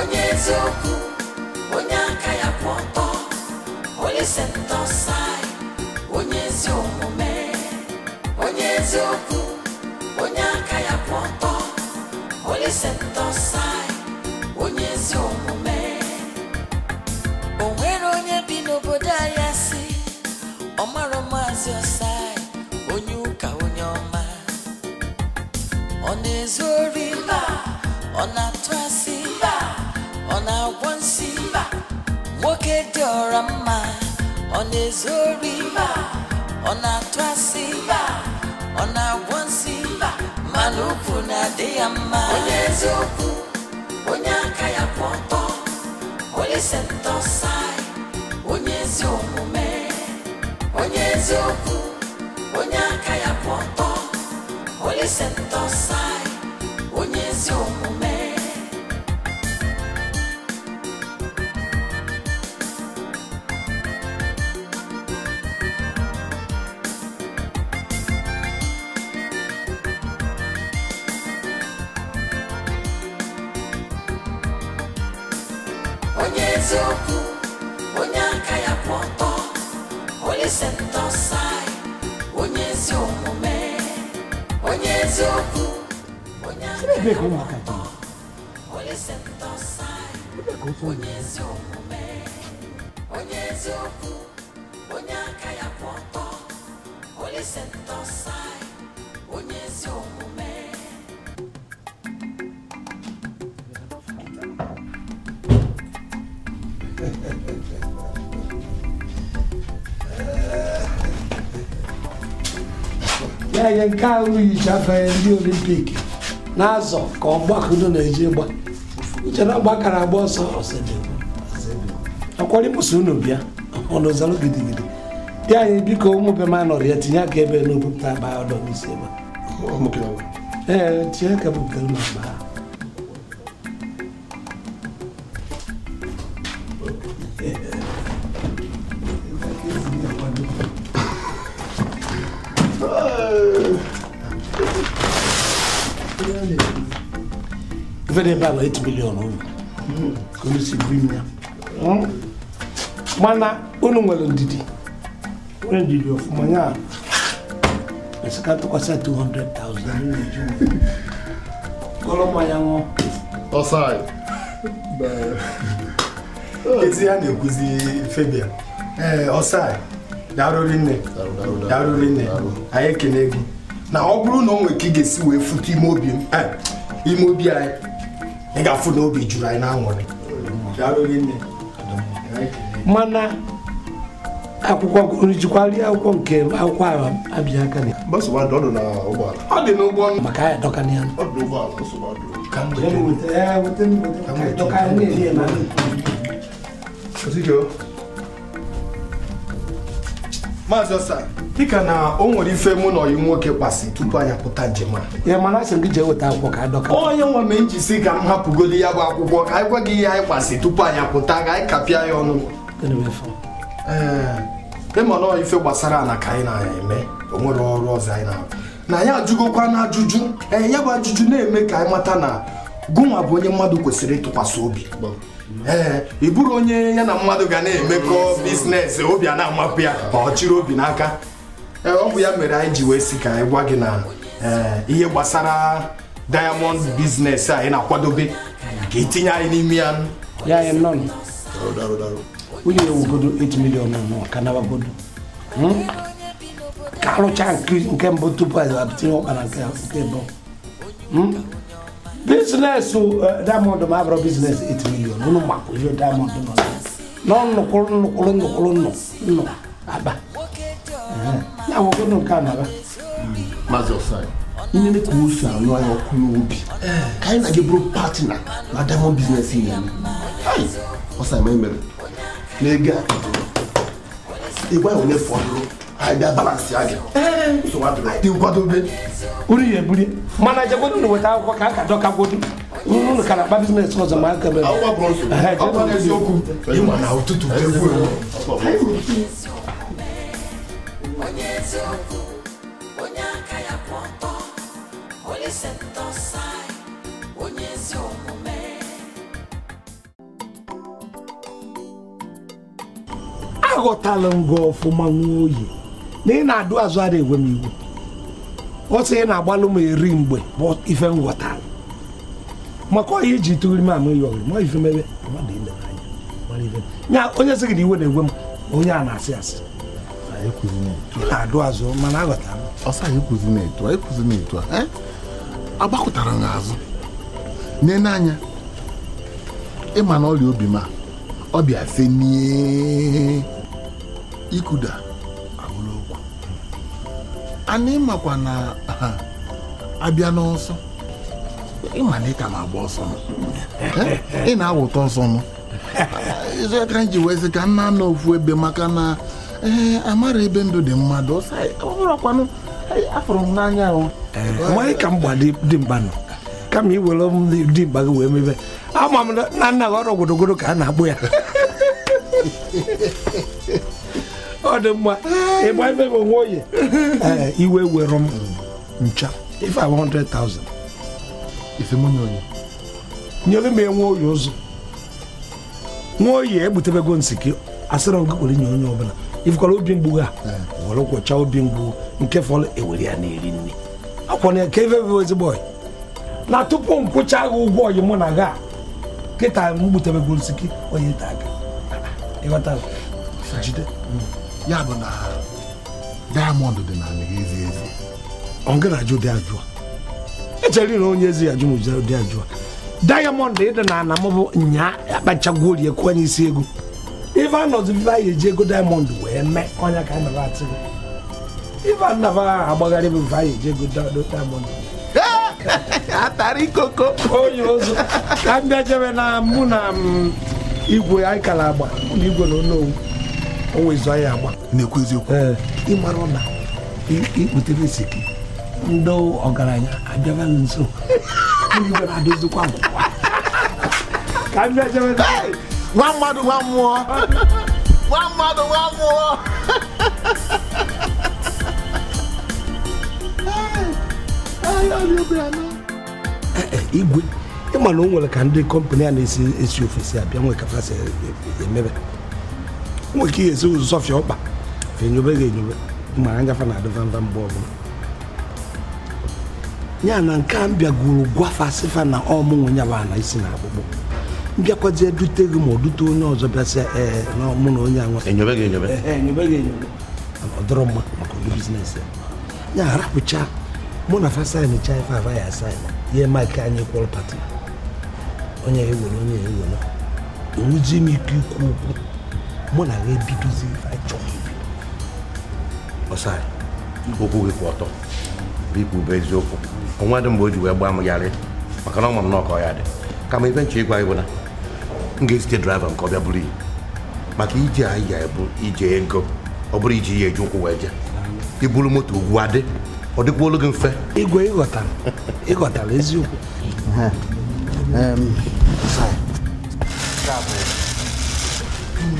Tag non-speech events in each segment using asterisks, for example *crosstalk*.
onye eziokwu onye ya kwụ ọtọ onye sentọsai onye ezi omume onye eziokwu ya kwụ ọtọ onye sentọsai onye ezi omume o bi n'obodo ahịa si ọmara maazị ọsai onye ụka onye Chineke dị ọra mma ọ na-ezu ori ọ na-atụ asị ọ na-agwọ nsị mana ukwu na-adị ya mma onye eziokwu onye sentọsai onye ezi omume onye eziokwu onye aka ya kwụ ọtọ onye sentọsai onye ezi omume na-enye nke ahụ yicha ndị olimpik na-azọ ka ọ gbakudo na-eji gba uche na gbakara agba ọsọ akwarịpụsị unu bịa ọnụzalụ gidigidi dị anyị biko ụmụ be ma ya tinye aka ebe n'obupụta agba ọdọ n'isi ebe ee dị ebe 8 million unu si buru hmm? mana unu nwere ndidi ọfụma ya 200,000 ya na nne nne aye na ọ bụrụ na ọ nwere ka ị ga-esi wee eh, ime obi anyị ị ga-afụ na obi juru anyị n'aṅụrị mana akwụkwọ rijikwarị akwụkwọ nke akwụkwọ ahụ abịa aka na ọ dị n'ụgbọ maka anyị dọka na ya Ka mgbe maazị ọsa dịka na o nwere ife mụ na ọyị nwoke kpasị tupu anyị apụta njem a ya mana asị gị jee weta akwụkwọ ka adọka onye nwa ma njisi ka m hapụgodi ya bụ akwụkwọ ka anyị gwa gị ihe anyị kpasị tupu anyị apụta ka anyị kapịa ya ọnụ ee mana ọ ife gbasara ala ka anyị na-eme o nwere ọrụ ọzọ anyị na-arụ na ya ajụgokwa na ajụjụ ee ya bụ ajụjụ na-eme ka anyị mata na gụnwa bụ onye mmadụ kwesịrị ịtụkwasị obi ee ị bụrụ onye ya na mmadụ ga na-emekọ biznes obi a na-amapụ ya ma ọ chịrị obi n'aka e ọ bụ ya mere anyị ji wee si ka anyị gị na ihe gbasara diamond biznes a ị na-akwadobe ka itinye anyị n'ime ya ya nọ onye ewugodo 8 million ka nabagodo hmm? ka arụcha nke mbụ tupu anyị tinye ọkpa na nke mbụ hmm? business uh, diamond ma abụrụ business 8 million ụnụ maka ihe diamond nọ nọ nnukwu nnukwu nnukwu nnụ aba ya nwoke nke a na-aba maazị ọsai ihe ne ka o si anụ anya ọkụ n'obi ka anyị na-aga bụrụ patina na diamond business ya ọsai ma emere na ego a ịgwa ya onye fọdụrụ àìdá balance àgẹ so wà bẹrẹ àìdí nǹkan tó bẹ. orí yẹ buri mana jẹ ko nínú wẹta kọ k'a ka dọ ka gbódú nínú kana bá business kọ sọ maa kẹmẹ. aw ka bọ so aw ka kẹ sọku i ma na o tutu bẹẹ fo yen. aghọtala m gị ọfụma nwa oyi na ị na-adụ azụ ara enwe m iwu ọ sị ị na-agbalụ m eri mgbe bụ ife m ghọtara maka ọhịa iji tụgiri m ama ya ọgịrị ma ife mebe ya onye sị gị na iwe na-egwe m onye a na-asị asị e ị na-adụ azụ mana aghọtara m agbakọtara n'azụ anya ịma na ọrịa obi ma ọ bịa fe n'ikụda ana ịmakwa na abịa n'ọsọ ịma na ịka na-agba ọsọ eh? ị na-awụta ọsọ m izu aka ji wezi ka nna anọ ofu ebe maka na ee eh, amara ebe ndụ dị mmadụ ọbụrụkwanụ afụrụ m n'anya eh, ahụ ka m gba dị mkpa nọ kama iwere m dị mkpa gị wee mebe ama m na nna gị ọrụ ogodogodo ka a na-agbụ ya *laughs* ọ dị mma ịgba ife bụ nwa oyi eh, iwe were m ncha ife a 100,000 ife m onye oyi nyere m enwe oyi ụzọ nwa oyi egbutebego nsị gị asịrị m kwere nye onye ọbụla ifekwara obi mgbu ha eh. were kwọcha obi mgbu nke fọrọ ewere ya na-eri nri akwọna ya ka ife bụ ezigbo oyi na tupu m kwụcha agha ụgwọ oyi mụ na ga kịta m gbutebego nsị gị onye ta aka ịghọta jide mm. ya bụ na diamond dị na anị ezi ezi ọ gara ajụ dị ajụ echere na onye ezi ajụ mụjụ dị ajụ diamond ịdị na ana mụbụ nya akpachagwu orie kwanye isi ego ife anọzi ife anyị eji ego diamond wee mee ọnya ka anara atị ife anaba agbagharị bụ ife anyị eji ego diamond *laughs* atara ikoko onye ozu ka m bịa jebe na mụ na igwe anyị kara agba igwe na onowu ọnwa izu anyị agba na-ekwu eziokwu ịmara na ikputere isi ndị ọgaranya abịaba nso adịzikwa nwa mmadụ nwa mmụọ nwa mmadụ nwa mmụọ igwe na o nwere ka ndị kọmpani a na-esi esi ofesi abịa nwee kapasi emebe nwere ike esi ụzọ sọfịa ọkpa enyobe ga enyobe mara ngafa na adịvamba mgbe bụla ya na nke a mbịagoro gwafa sịfa na ọmụnwe ya ba na isi na akpụkpọ mbịakwazie dute gị ma ọ dute onye ọzọ ya ee na na onye anwa enyobe enyobe enyobe enyobe ọ dọrọ mma maka ụdị ya arapụcha mụ na fasaịn cha ife ya asaịn ihe maịkị anyị kwụrụ pati onye ewere onye ewere m ike ikwu okwu mụ na ya ebidozi ife anyị chọrọ ibi ọsai okwu gị bɛ ọtọ biko bụ eziokwu de dị mgbe o ji wee gbaa m yarị maka na ọ ọkọ ya dị kama ife nche ịgwa ịbụ na m ga-ezite draiva nke buru maka ije anyị ya ebu ije ego ọ bụrụ iji ya eji ụkwụ wee jee iburu moto ugwu adị ọ dịkwa olu gị mfe ịgwe ịghọtara eziokwu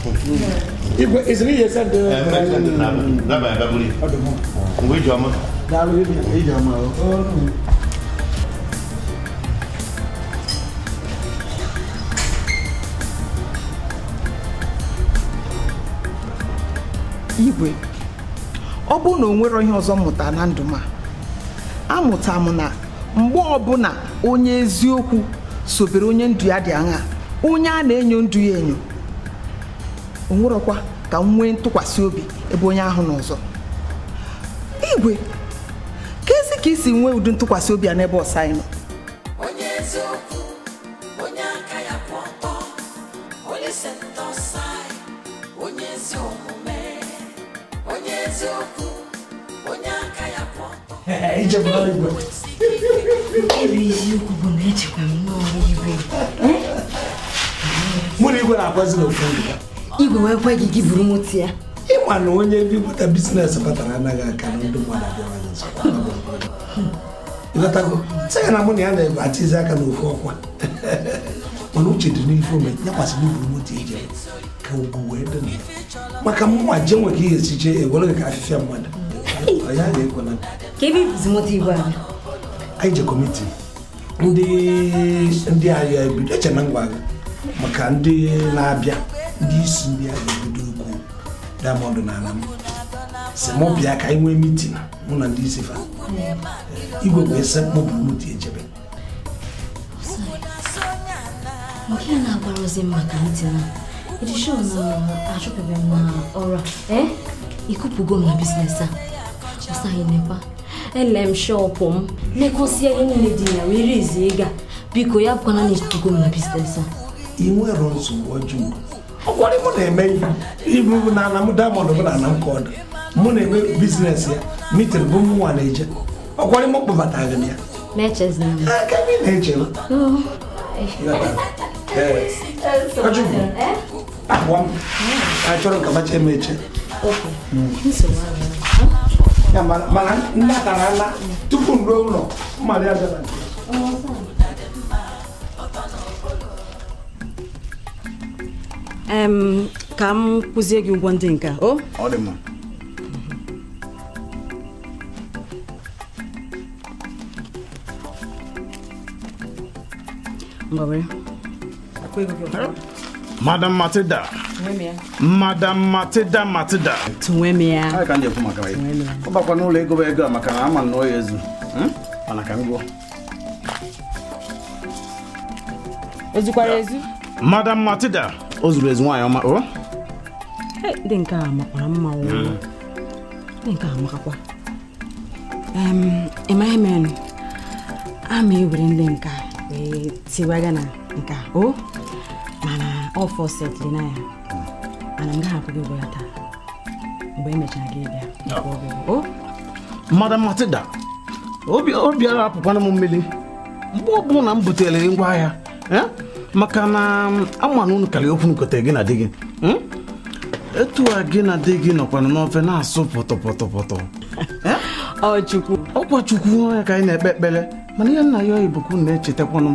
wuli. Uh, eh, o. igwe ọ bụrụ na o nwero ihe ọzọ mụta na ndụ a amụta m na mgbe ọbụla onye eziokwu sobere onye ndụ ya dị aṅa onye a na-enyo ndụ ya enyo o nwerọkwa ka nwee ntụkwasị obi ebe onye ahụ n'ụzọ. igwe ka ezi ka isi nwee ụdị ntụkwasị obi a n'ebe ọsa anyị nọ eziokwu bụ na echekwa m n'ọrụ igwe mụ na igwe na-agwazi n'ofu igwe wee kwe gị gị buru mụti ya ịma na onye bipụta biznes kpatara anaghị aka na ndị mmadụ ịghọtago na mụ na ya na-achịzi aka ọkwa *laughs* mana uche dị n'ife ome nyakwasịrị ije ka ugwu wee dị na maka mụnwa je e nwere ihe jee ewere gị ka afịfịa mmadụ ya na-ekwela ka ebe ibuzi moto anyị anyị je kọmiti ndị ndị ahịa ebido eche na ngwa maka ndị na-abịa ndị isi ndị a ga-ebido ukwu Diamond na ala m si mụ bịa ka anyị nwee mitin mụ na ndị isi fa igwe wee sekpụ bụrụti ejebe echebe. na-agbara ozi maka mitin edishon achụpụbeghị m na ọrụ a ịkụpụgo m na biznes a ọsaghị nekwa ele m shọpụ m negosie ihe niile dị ya were izi ịga biko ya bụkwana na ịkụpụgo m na biznes a ị nwere nsogbu ọjọọ ọkwara mụ na-eme ihe ibu na m diamond bụ na ana oh. m ka ọdụ mụ na-eme biznes ya mitin bụ m nwa na-eje ọkwara mụ kpọbatara m ya aka gị na m achọrọ eme eche mana ala tupu m ruo ụlọ mmadụ ya bịara ka m kụzie gị ụgwọ ndị nke o Madam Matilda. Madam matida ka maka Ọ bakwa n'ụlọ ego bụ ego a maka na ama nnọọ hmm? ya ezu. Mana ka m gụọ. Ezukwara ezu? Madam Matilda. o zuru ezu nwaanyị ọma o eh, dị nke a makwara mma hmm. dị nke a makakwa ịmaghị m ama ewere ndị nka wee tiwaga na nka o mana ọ fọsetịrị na ya mana m gaghị akwụghị ụgwọ ya taa mgbe emechara gị bịa o Madam Matilda obi ara apụkwana m mmiri mgbe ọ bụla m butere ngwa ahịa eh? maka na ama na unu okwu nkotere gị na di gị hmm? etu a gị na di gị nọkwana n'ofe na-asụ pọtọpọtọpọtọ eh? *laughs* ọkwa chukwu y'a ka anyị na-ekpe ekpere mana ihe nna ya oyibokwu na-echetakwanụ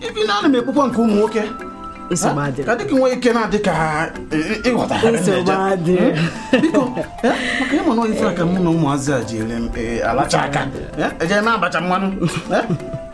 ibi m nke ụmụ nwoke ka nwee ike na-adị ka hmm? biko eh? maka mụ na ụmụazị a ji eh, alacha aka eje na abacha mmanụ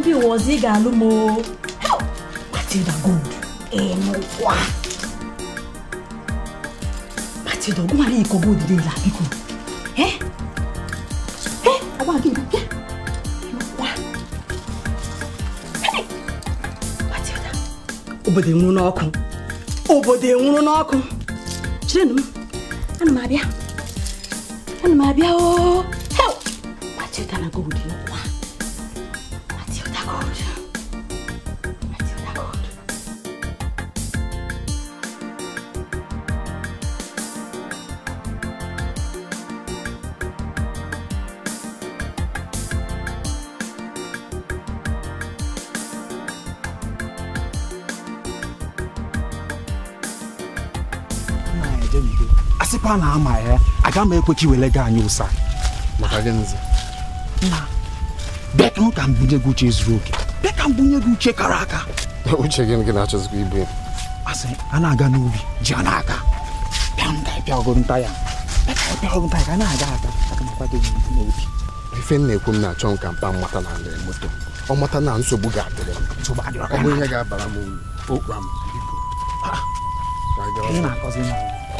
ndị ụwa ọzọ ị ga-alụ m o Matilda Gold ịnụkwa Matilda ọgwụmara iko gold dị la biko ọgwa gị bịa ịnụkwa Matilda obodo enwuru n'ọkụ obodo enwuru n'ọkụ chirenụ m ana m abịa ana m abịa o Matilda na gold ịnụkwa a na-ama ya aga m ekwe ka iwere gị anyị ụsa bịa ka mbunye gị uche zuru oke bịa ka mbunye gị uche kara aka *laughs* uche gị gị na-achọzikwa ibu ya asị a na-aga n'ubi ji a n'aka bịa m ka ịpịa nta ya bịa nta ya ka a na-aga aga aka nakwa gị n'obi ife m na-ekwu m na-achọ m ka mkpa mmata na ndị moto ọ mata na nsogbu ga-adịrị m ọ bụ ihe ga-abara m okpu m biko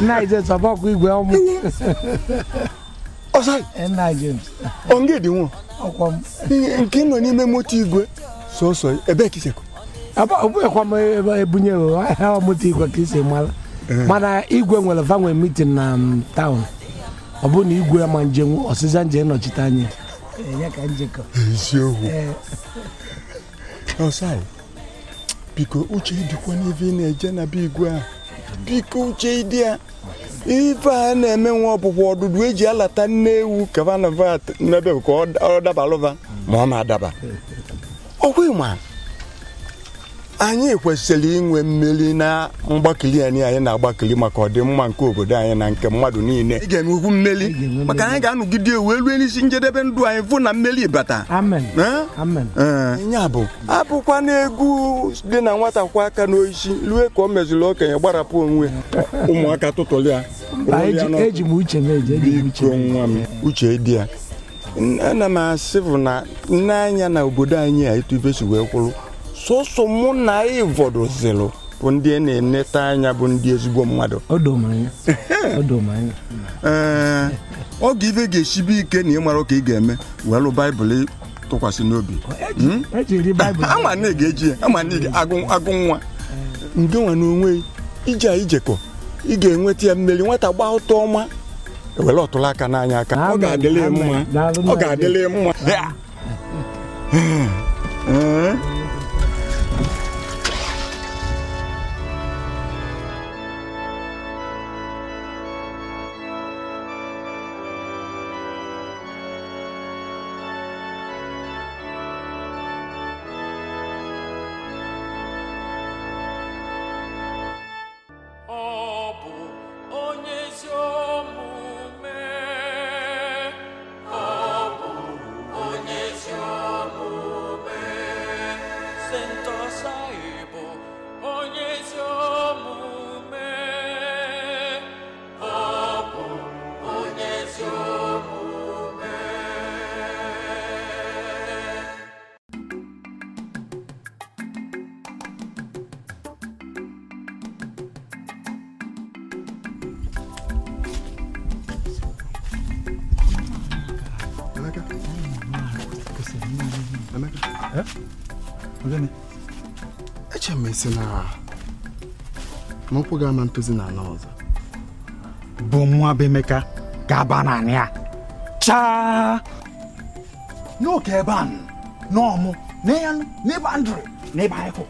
Nigel Sabakwa *laughs* oh, oh, oh, igwe ọmụ. Ọsọ. Nna Ọ nga Nke nọ n'ime moto igwe sọsọ ebe ka isekwu. Ọ bụghịkwa m ebe eh. ebunye ahịa moto igwe ka isi mara. Mana igwe nwere vanwe mitin na taụn. Ọ bụ na igwe ma njem ọsịza njem nọchite anya. Eh, Eziokwu. Eh, biko uche na-eje igwe ahụ. biko uche ịdị ya ife a na-eme nwa ọpụpụ ọdụdụ eji alata nne ewu kavanava n'ebe ka ọ dabara ma ọ ma adaba ọkwa ịma anyị kwesịrị inwe mmeri na mgbakili anyị anyị na-agbakili maka ọdịmma nke obodo anyị na nke mmadụ niile ị ga-enwe ukwu mmeri maka anyị ga-anụgide ewu elu n'isi njedebe ndụ anyị fụ na mmeri bata ya bụ abụkwa na egwu dị na nwata kwa aka n'oisi rue ka o meziri okenye gbarapụ onwe ụmụaka tụtụrụ ya nwa m uche dị ya ana m asị bụ na nne anya na obodo anyị a etu ibe wee kwụrụ sọsọ mụ na ịvọdozilụ bụ ndị e na-eneta anya bụ ndị ezigbo mmadụ ee oge ibe ga-esibe ike na mara ka ị ga-eme welụ baịbụl tụkwasị n'obi e hmm? e *laughs* ama na ga-eji ya ama na agụ nwa nke na onwe ije ijekọ ị ga-enweta ya mmeri nwata gba ụtọ ọma ewere ọtụrụ aka n'anya aka ọ ga-adịla mma ọ ga-adịla mma Emeka. Eh? Ogene. Eche m isi na na ga-ama na ala ọzọ. Bụ nwa bụ Emeka ga naanị Chaa! N'oke ebe a n'ọmụ n'ebe ndụrụ n'ebe anyịkwụ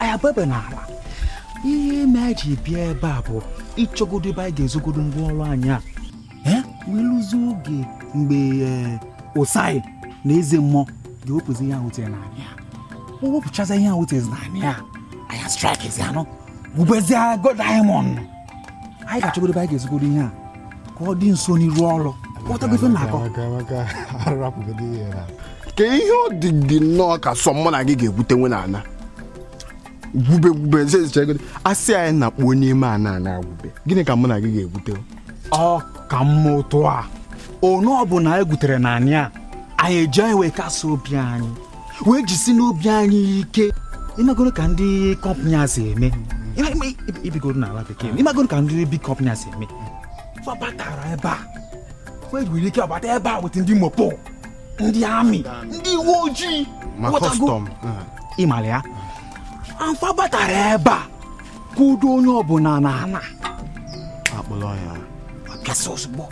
anyị abụebe n'ala ihe mere ji bịa ebe a bụ ịchọgodo ebe anyị ga-ezogodo ngwa ọrụ anyị a wee oge mgbe eh, na eze mmụọ ya wepụzi ihe ahụ tere n'anị ya o wepụchaza ihe ahụ tere n'anị ya anya strikezi anụ gbubezie go diamond anyị ga-achọgodo anyị ga-ezigodo ihe a ka ọ dị nso n'iru ọrụ ka ihe ọ dị gị nnọọ ka sọ mụ na gị ga-egwutenwe n'ala gwube gwube asị anyị na kpuo n'ime ana ana gwube gịnị ka mụ na gị ga-egwute ọ ka mma otu a one ọ bụla anyị e gutere na a anyị eji wee kasị obi anyị wee jisi n'obi anyị ike ịmagoro ka ndị kọmpani a si eme ibigoro n'ala bekee ịmagoro ka ndị big kọmpani a si eme batara ebe a wee ike ọbata ebe a weta ndị mopo ndị amị ndị uwe ojii ịmara ya amfa ebe a kwudo onye ọbụla na ana ya ozugbo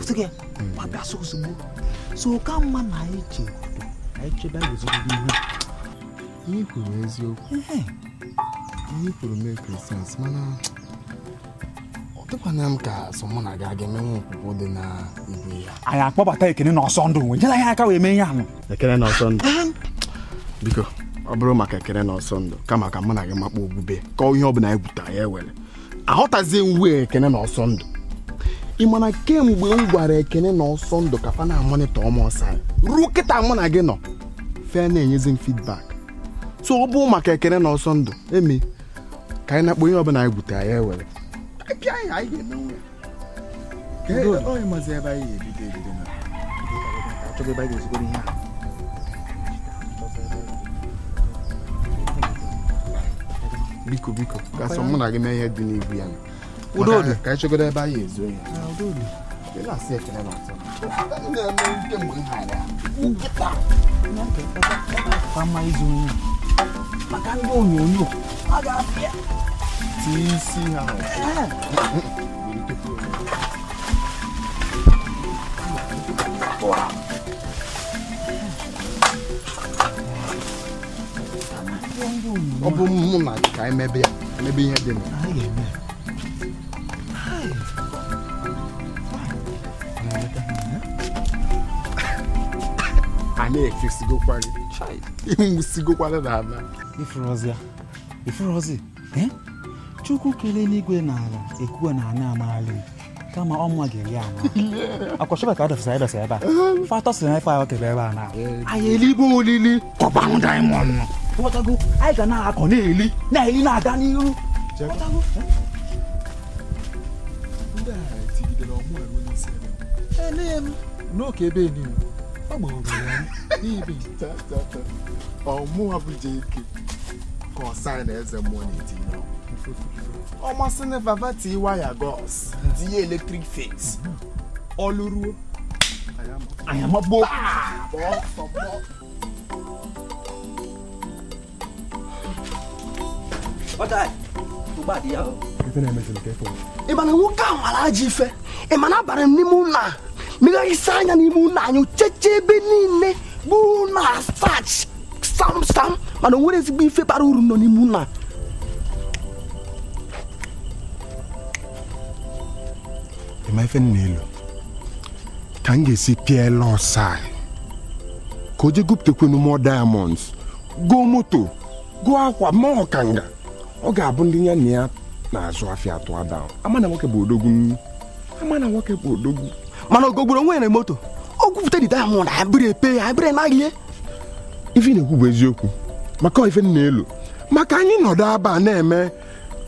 ozugbo so ka mma na anyị chebe anyị chebe gozigide ihe ihe kwuru eziokwu ihe kwuru mekri sens mana ọ dịkwana m ka so mụ na gị aga emenwe okwukwo dị na ibu ya anyị akpọbata ekene na ọsọ ndụ nyela ya aka wee mee ihe ahụ ekene na ọsọ ndụ biko ọ bụrụ maka ekene na ọsọ ndụ kama ka mụ na gị makpa ogbube kọọ ihe ọ bụla anyị gwutara ya ewere aghọtazie uwe ekene na ọsọ ndụ ị ma na kemgbe m gwara ekene na ọsọ ndụ kafa na amonitọ ọma ọsọ anyị ruo kịta mụ na gị nọ fe na-enyezi m feedback so ọ bụ maka ekene na ọsọ ndụ eme ka anyị na-akpọ onye ọbụla anyị gwute ya ewere biko biko gasọ mụ na gị mee ihe dị n'igwu ya Udoli. Ka ci gudu ba ya zo ya. Udoli. Ina sai ka da mata. Ina mun ke mun hada. Kita. Na ka ka fa mai zo ni. Maka ndo onyonyo. Aga afia. Ti si ha. Wow. ọ bụ mụ na ka emebe ya emebe ihe dị na ana ekesigokwari *laughs* ịnwụsigokwara na ala ifụrọzi ifụrọzi chukwu kelee n'igwe na ala ekuwe na ana amaala kama ọnwa ga-eri ama *laughs* akwachọba ka adọfụsa ịdọsa ebe a *laughs* fatọ si na ife ahụ ebe a na anyị eligbo olili kọbanụ daimọnd ghọtago anyị ga na-akọ na-eli na-eli na-aga n'ihu ghọtago n'oke ebe niile ọmụ abụja ike ka ọsa na eze mmụọ na-etinye ọmasị na vavati waya gos tinye eletrik fes ọlụruo anyamagbo ị mana nwoke ahụ mara ajọ ife ị mana abara m n'ime ụlọ a megharịsịa anya n'ime ụlọ anyị cheche ebe niile bụ ụlọ asach samsam mana o nwere ezigbo ife bara uru nọ n'ime ụlọ ịma ife nna elu ka m ga-esi pịa lọsai ka o jee gụpụtakwanụ mọ diamonds gụọ moto gụọ akwa ma ọkanga ọ ga-abụ ndị ya na ya na-azụ afịa atụ ada ama na nwoke bụ odogwu ama na nwoke bụ odogwu mana ogogburu onwe ya moto o di dide ahụ na abịrị epe ya abịrị naghị ihe ife na-ekwu bụ eziokwu maka ife na-elu maka anyị nọdụ aba na-eme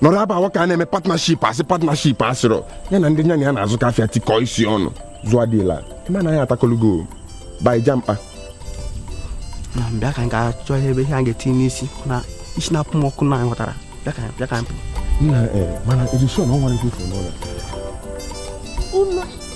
nọrọ aba awa ka a na-eme patnaship asị patnaship asịrọ ya na ndị nyanya ya na-azụ ka afịa tikọ isi ọnụ zụọ dịla eme na anyị atakọlugo baija mkpa bịa ka m ga-achọ ebe ihe a ga-etinye n'isi na isi na-apụ m ọkụ na anyị ghọtara bịa ka bịa ka m eh, mana edison ọ nwere ife n'ụlọ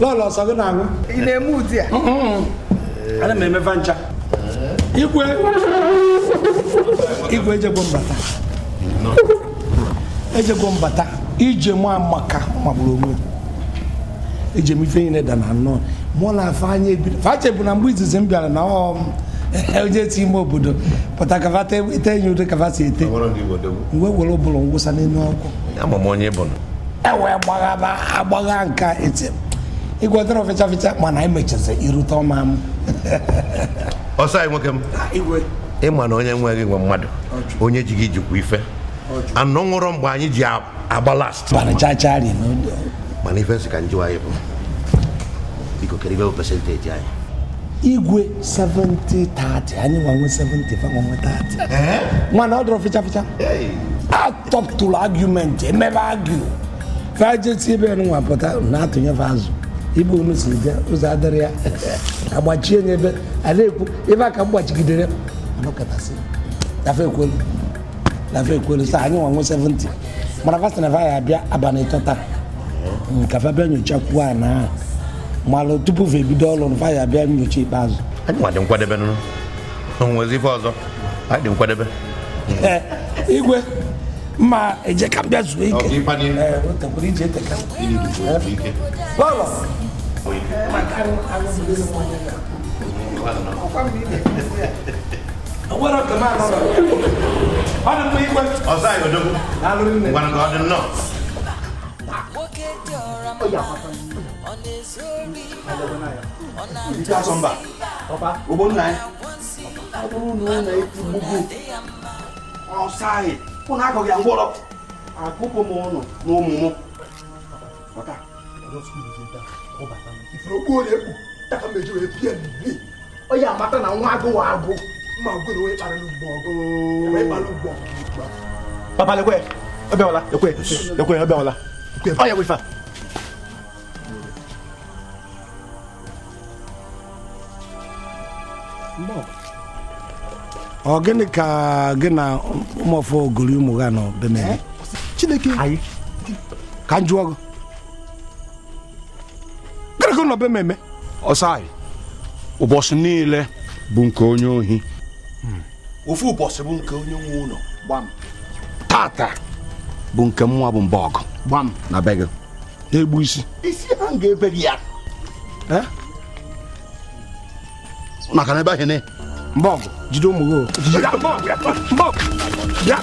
lọlọ sọ gị na aṅụ ị na-eme ụdị a ana m emefa ncha igwe igwe ejegbo mbata ejegbo mbata ije mụ amaka magburu onwe eje m ife niile dana nnọọ mụ na afanye ebido fache bụ na mgbe izizi m bịara na ọ onye ti ime obodo pụta kavata ete enyi ụdị kavata ete mgbe were ụbụrụ ngwụsa n'elu ọkụ ewe gbagha agbagha nka etem ịgwọtara ọfịcha fịcha mana anyị e mechazi irute ọma m *laughs* ọsọ anyị nwoke m ịma na onye nweghị nwe mmadụ onye ji gị jikwa ife anọ nwụrọ mgbe anyị ji agba last mana ife nsị ka njiwa anyị bụ biko kere ibe pesenteji anyị igwe 70 30 anyị nwanwe 70 thirty 30 eh? nwana ọ dọrọ fịcha fịcha atọpụtụrụ argument emebe argue ka jesi ebe nwa pụta na-atụnyefe azụ ibu mu si bịa ụzọ adịrị ya agbachie nye ebe a na-ekwu ebe a ka m gbachigidere anọkọtasị lafe ekwelu lafe ekwelu sa anyị nwanwe 70 mara fasta na ya abịa abalị tọta nkafe bịa nyochakwuo a na malụ hmm, tupu fa ebido ọrụ nfa ya abịa nyocha ikpeazụ anyị nwa dị nkwadebe nụ onwezi hmm, ife ọzọ anyị dị nkwadebe eh, igwe mma eje ka m bịa zuo ike lọlọ point. Uh, I can't, I don't believe in one year. What up the man? What up the man? Outside, you do. I don't know. One God and not. Oh, yeah. On his glory. You can't come back. Papa. Go on, nine. I don't know. Outside. When I go get a wall up, I go home. No, no. What up? I don't speak with you. ifuro gboo na-ekpu taka meji wee pie bibi ọ ya amata na nwa agụ wa agụ mma gwere onye kpara n'ugbo ọgụ kpara ugbo papa lekwe ọbịawala lekwe lekwe ọbịawala ọ ya wefa ọ gịnị ka gị na ụmụọfọ gori ụmụ ha nọ bemere chineke ka m gị gịnị ka be m eme ọsai ụbọchị niile bụ nke onye ohi hmm. ofu ụbọchị bụ nke onye nwe ụlọ gbam tata bụ nke nwa bụ mba ọgụ gbam na be gị na-egbu isi isi ha ga-ebe gị ya eh? maka na ebe ahụ ne mba ọgụ Jido Muro. Biambok! Biambok! Yeah.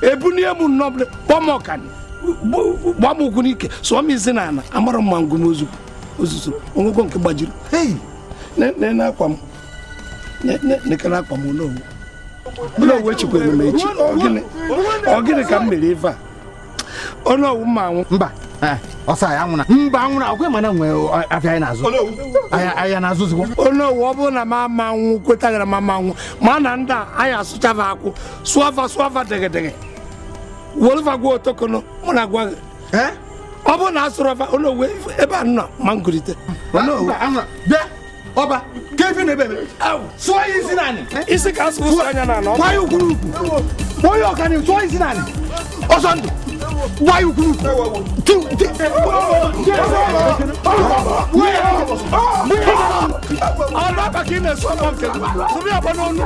ebunye m nnọbụla kpọm ọkani m ụkwụ n'ike sụọ m isi n'ala amara mma ngụm ozuzo onwego nke gbajiri akwa m nekere akwa m n'owu n'owu echikwere emume echi ọ gịnị ka m mere ife a onye owu ma anwụ mba Eh, ọsọ ya anwụna mba anwụna ọkwa mana nwee afịa anyị na-azụ ahịa na-azụzikwa ọ bụrụ na m ama nwụ ma ama nwụ ma na ndị a anyị asụchava akwụ wolfa gwa otokono mụ na gwa gị eh? ọ bụrụ na a onowu kefi ne bebe so isi nani isi ka asụrụ ụsọ anya na anọ gwa ya ukwurukwu onye ọkani tụọ isi nani ọsọ ndụ gwa ya ukwurukwu ọlọ́pàá kì í na esu ọkọ nkè sọbi ọkọ n'ọnu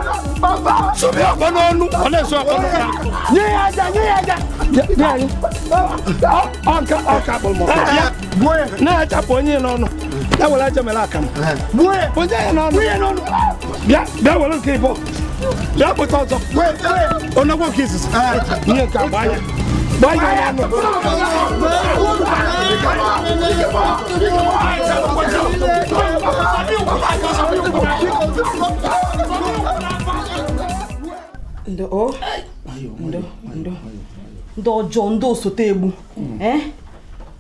sọbi ọkọ n'ọnu ọ na esu ọkọ n'ọnu. nye ya aja nye ya aja. ọkà ọkà bọ̀lmọ̀. n'a yà chapọ̀ onye n'ọnụ that will answer my lack. Where was there no? Where no? Yeah, that will keep up. That was also where on the work cases. Near Kabaya. Why you have to put on ndo ndo ndo ndo ọjọọ ndị osote egbu eh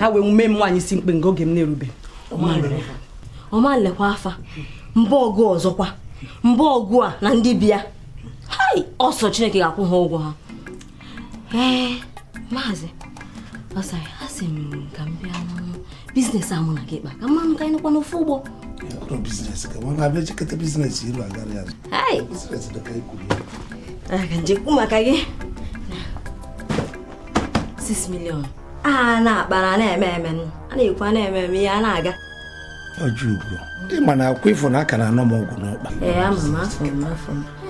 ha wee mee m nwaanyị si mkpe nga oge m na-erube ọma lekwa afa mba ọgụ ọzọkwa mba ọgụ a na ndị bịa ọsọ chineke ga-akwụ ha ụgwọ ha ee maazị ọsara ha si m ka m bịa biznes a mụ na gị kpa ka mmanụ ka ịnụkwa n'ofe ụgbọ ka njekwu e maka gị 6 million a na-akpa na na-eme eme a na-ekwu na-eme eme ihe a na-aga ma na akwụkwọ ifo na aka na-anọ m ọgwụ n'ụkpa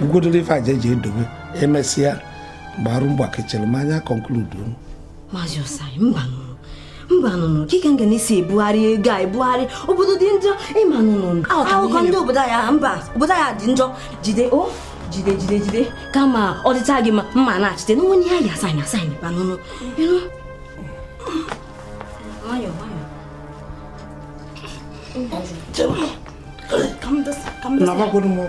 ugodoro ife aja eji edobe emesịa gbarụ mgbakechere m anya konkludu na ebugharị ego a ebugharị obodo dị njọ ịmanụnụ akụkọ ndị obodo ya mba obodo ya dị jide o jide jide jide kama ọ dịta gị ma mma na-achite n'onwe ihe a ga-asaịna nakwakwara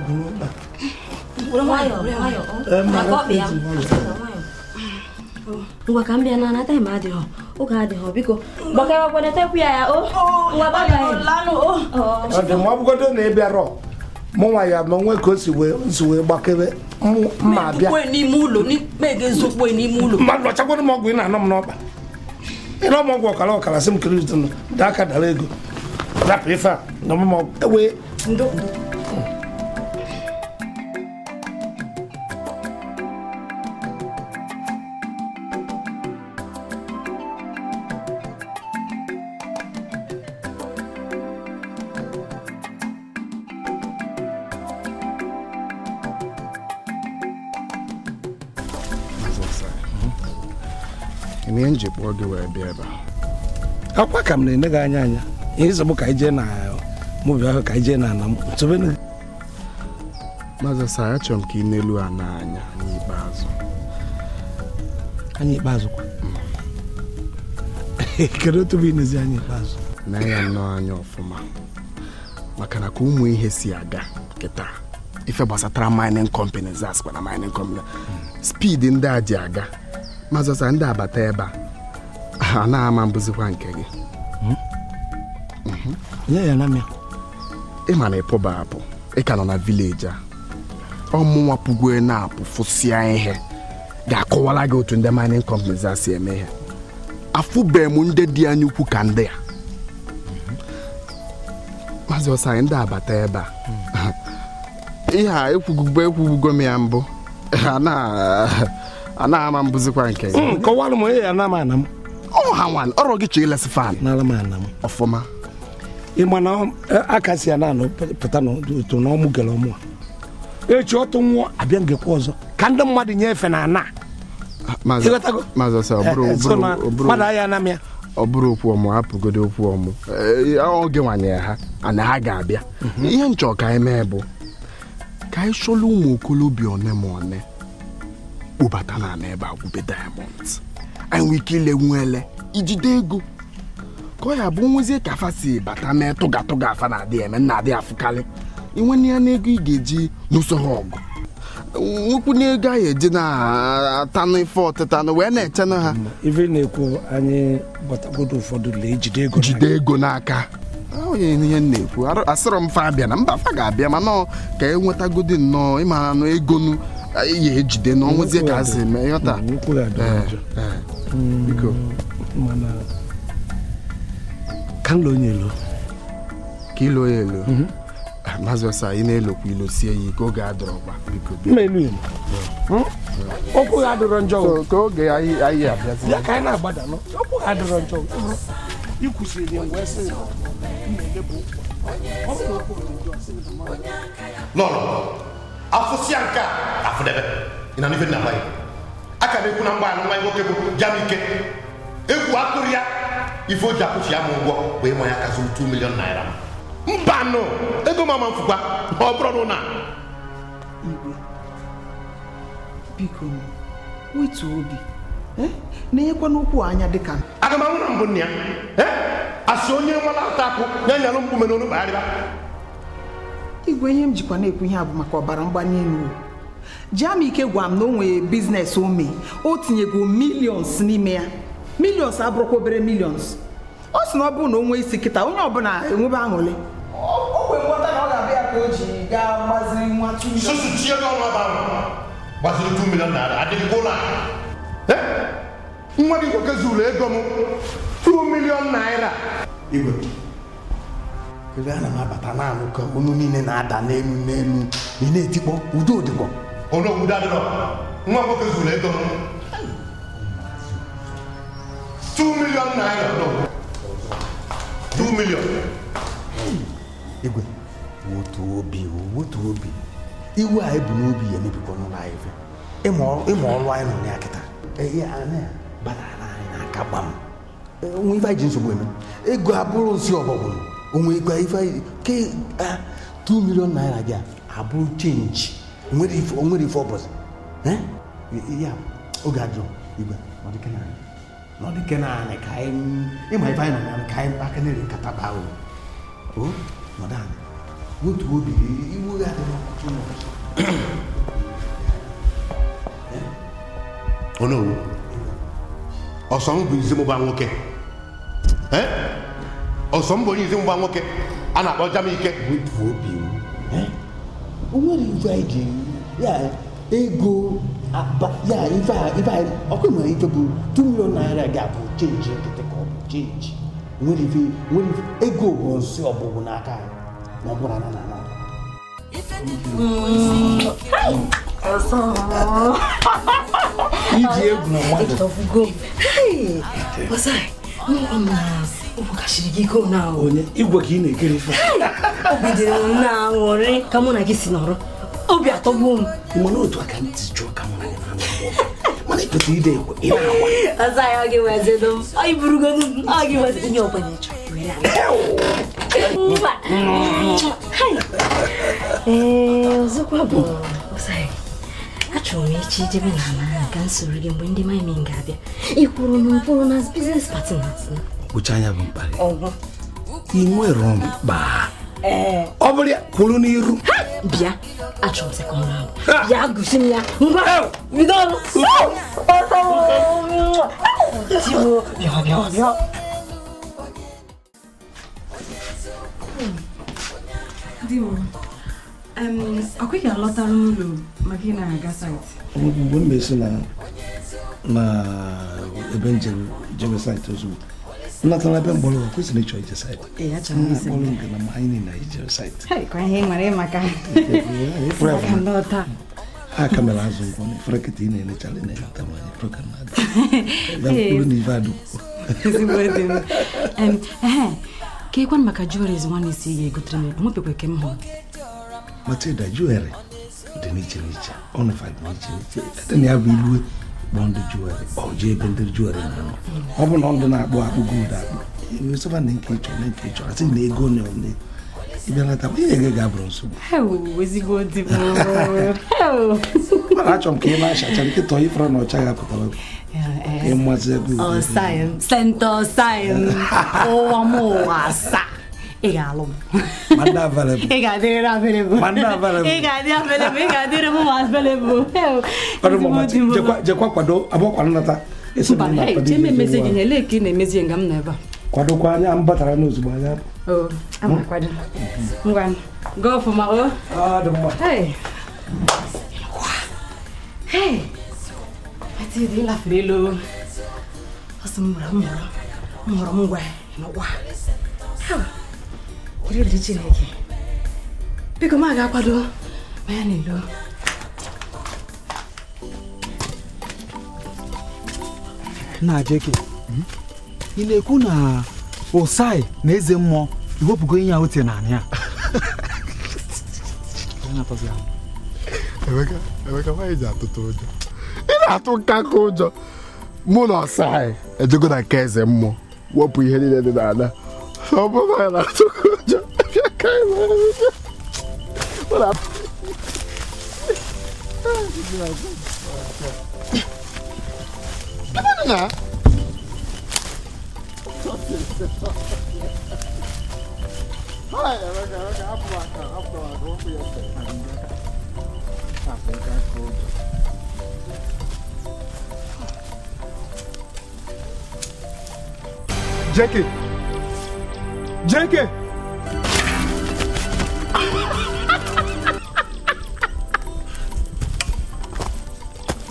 ngwa ka m bịa na anata ma adịghọ oge adịghọ biko gbakọwakwanatekwu ya ya o ọ na ị bịara mụ nwa ya ma ka o si wee gbakebe ma bịa mmadụ ọchakwara m ọgwụ ị na-anọ m n'ọkpa ịnọ m ọgwụ ọkara ọkara sị m kiri aka dara ego That prefer. No more away. Èmi ń jikwa oge wee bịa ebe a. Akwa ka m na-enye anya anya. ihe zọbụ ka ije na mobi ahụ ka ije na ala mkpụ Maazị Asa achọrọ m ka ị n'elu a n'anya anya ikpeazụ anya ikpeazụ kwa kedu otu bụ inezi anya ikpeazụ na ya nnọọ anya ọfụma maka na ka ụmụ ihe si aga kịta ife gbasatara mining companies asịkwa na mining company speed ndị a ji aga Maazị Asa ndị abata ebe *laughs* a a na-ama mbụzikwa nke gị nye ya na mịa ị ma na ịpụba apụ ị ka nọ na vileji a ọmụnwa pụgwue na-apụ fụsịa ihe ga-akọwara gị otu ndị mining companies a si eme ihe afụbeghị m ndị dị anya ukwu ka ndị a mhm. maazị ọsọ anyị ndị abata ebe a mhm. ihe a ekwugo ekwugo m ya mbụ anaghị ama mbụzikwa nke ya. Mm, kọwalụ m onye ya na ama ana m ọ ha nwa ọrụ gị chọọ ilesi fan ọfụma ịma na eh, aka si ya na pụta n'otu na ọmụ gere ọmụ echi ọtụ nwụọ abịa ngekwa ọzọ ka ndị mmadụ efe na ana ah, eh, eh, mmadụ ahịa na ya ọ bụrụ okwu ọmụ apụgodo okwu ọmụ oge nwanyere ha ana ha ga-abịa mhm. ihe nchọ ka anyị mee bụ ka anyị chọla ụmụ okolobịa one ma one kpụbata na ana ebe agwụbe diamond anyị nwee ike ile nwa ele ijide ego ka ọ ya bụ nwezie ka afa si bata mee tụga tụga afa na-adị eme nna-adị afụkarị inwene ya n'ego ị ga-eji n'usoro ọgụ nwekwu n'ego anyị eji na-atanụ ife ọtịtanụ wee na-echenụ ha mm, ife na-ekwu anyị gbatagodo ụfọdụ ejide ego jide ego n'aka onye ihe na-ekwu asịrọ m fa abịa na mba fa ga-abịa mana ka enwetagodo nnọọ ịmara nụ egonu nu ya ejide n'ọnwụzie ka a si eme ịghọta mm, ka lo loo elu elo ka ị ya ị na ilo sie ya ike oge biko ha adọrọ njọ ka oge anyị abịazi ya ka anyị na-agbada okwu ha adọrọ njọ ikwusiri mgbe sị nọ afụsịa nke a afụdebe ị na n'ife nna mgbaghị a ka na-ekwu na mgbaghị nwa nwoke bụ ya ike egwu atụrụ ya ife oji ji akwụchi ya m ụgwọ bụ ịma ya kasị 2 million mba mbanụ ego mama mfụkwa ọ bụrụ na biko wetu obi na-enyekwa eh? n'ụkwụ anya dịka aga m anwụrụ mbụ nna ya eh? asị onye nwala ata akụ na nyalụ mkpume n'olu kpagharịba igwe ihe m jikwa na-ekwu ihe a bụ maka ọbara mgbali elu Jamike gwara m na o nwere biznes ome o tinyego milions n'ime ya milions abụrụkwa obere milions ọ sị na ọ bụrụ na o nwee isi kịta onye ọbụla enwebe aṅụrị nwa gị nwoke zuru ego m 2 milion naira igwe ebe a na m abata naanị ka olu niile na-ada n'elu n'elu ị na-etikpọ udo dịkwa olu obodo adịrọ nwa nwoke zuru ego m two million naira no two million. igwe wotu obi wotu obi iwe a ebu n'obi ya emebikwa n'ụlọ anyị fe ịma ọrụ anyị nọ ya kịta ihe anyị banana anyị n'aka gbam onwe ife anyị ji nsogbu eme ego abụrụ nsị ọbọgwụ onwe ikpe ife ke a two million naira gị abụrụ chenji onwere ife ọbọchị ya oge ajụ igwe ọ dịka na anyị na ɔde kɛnɛ a ne kae mu ɛma ɛfa na ne kae mu aka ne de nkata baa o o na ɔda ne wotu wo bi iwu ade na ɔkɔtɔ na ɔkɔtɔ. ɔno wo ɔsɔn bụ nzi mụba nwoke ọsọm bụ onye nzi mụba nwoke a na-akpọ jam ike wotu wo o onwere ife ego ya ife a ife a ọkụ nwere ife bụ 2 naira ga-abụ chenji nkịtị ka ọ bụ chenji nwere ife nwere ego bụ nsị ọgbụgbụ n'aka na ọbụla na na na iji egwu na mmadụ gị na onye igwe ka ị na-ekere ife na-aṅụrị ka mụ na gị si nọrọ obi atọ atọgbu m mana otu aka ntị jụọ ka mma mana ekpeta ide ekwe ị na-agwa ọzọ ya ọ gị wezedo m ọ iburugo ọ gị weze onye ọbụla ịchọ ee ọzọkwa bụ achọrọ m echi jebe na ama ka m soro gị mgbe ndị maimin ga-abịa ịkwụrụ m mkpụrụ na biznes patnas kpụcha anya bụ mkparị ị nwere mkpa ọ eh. bụrụ ya kwuru n'iru bịa achọrọ sekọnd ahụ ya gụsi m ya ngwa bido ọrụ di m ọkweghị alọtara ụlọ maka ị na-aga saịtị mgbe m na ebe njem jebe saịtị ozugbo nnatanabịa mgbọrọgwụ kwesịrị la ijeside isi nke na anyị niile ijeside a ka mere azụ ngwọ na efere kịta ị na-elechara na-eleta nwanyị ka na-adị ya mkpụrụ na ife adụkwụ ka ịkwanụ maka jueres nwanne isi ga-egotere m nwepekwe ke m hụ matilda ị dị n'iche n'iche ọnụfa dị n'iche n'iche na ya bụ kpọ ndị juweri ọ jee ebe ndị na akpọ ọ bụ na ọdụ na-akpụ akpụ gold akpụ ewesoba na nke ịchọrọ na nke ịchọrọ na ego na ole ịbịalata ihe ege ga-abụrụ nsogbu mana achọrọ m ka ị na-achacha nkịta onye fọrọ na ọcha ga-apụtara ịmazị eh, eh. ego sentọ ụwa m ụwa asaa ị ga vele ị Egadera vele bu. Mandava vele kwado abo kwa nata. Ese mba. Hey, cheme message anya ambatara n'ozugbo anya. Oh. oriri Chineke biko m a ga-akwado ma ya na-elo na jeke ị na-ekwu na ụsai na eze mmụọ iwepụgo ihe a tie na anị a emeka nwaanyị ji atụtụ ụjọ ị na-atụ nkaka ụjọ mụ na ọsai ejego na nke eze mmụọ wepụ ihe niile dị n'ala Só vou vai lá, tô já cai lá. Olha lá. Que banana? Olha, vai cá, vai cá, abre lá, cara, abre lá, vamos ver essa. Ah, vem cá, coisa. Jackie! vai